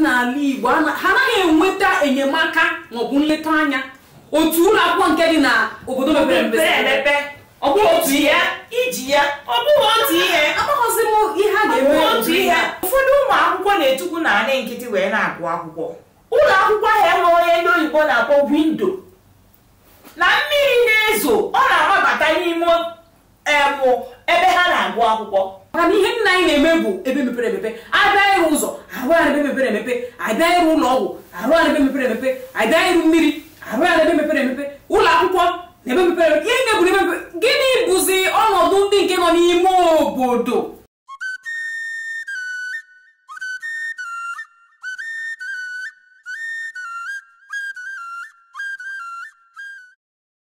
n'ala Igbo ha anaghị enweta enyemaka maọbụ nleta anya otu ụlọ akwụkwọ nke dị na obodo mepere emepe ọ bụghị otu ihe iji ya ọ bụghị otu ihe amaghịzi m ihe a ga otu ihe ụfọdụ ụmụ akwụkwọ na-etukwu na anị nkịtị wee na-agụ akwụkwọ ụlọ akwụkwọ ahụ enwe onye ndị oyibo na-akpọ windo na mmiri na-ezo ọ na-amabata n'ime ebe ha na-agụ akwụkwọ mana ihe nna anyị na-eme bụ ebe mepere emepe abịa ụzọ arụ ara ebe mepere emepe abịa ụlọ ọgwụ arụ ara ebe mepere emepe abịa mmiri arụ ara ebe mepere emepe ụlọ akwụkwọ na ebe mepere emepe ihe na-eburu gịnị bụzi ọnọdụ ndị nke nọ n'ime obodo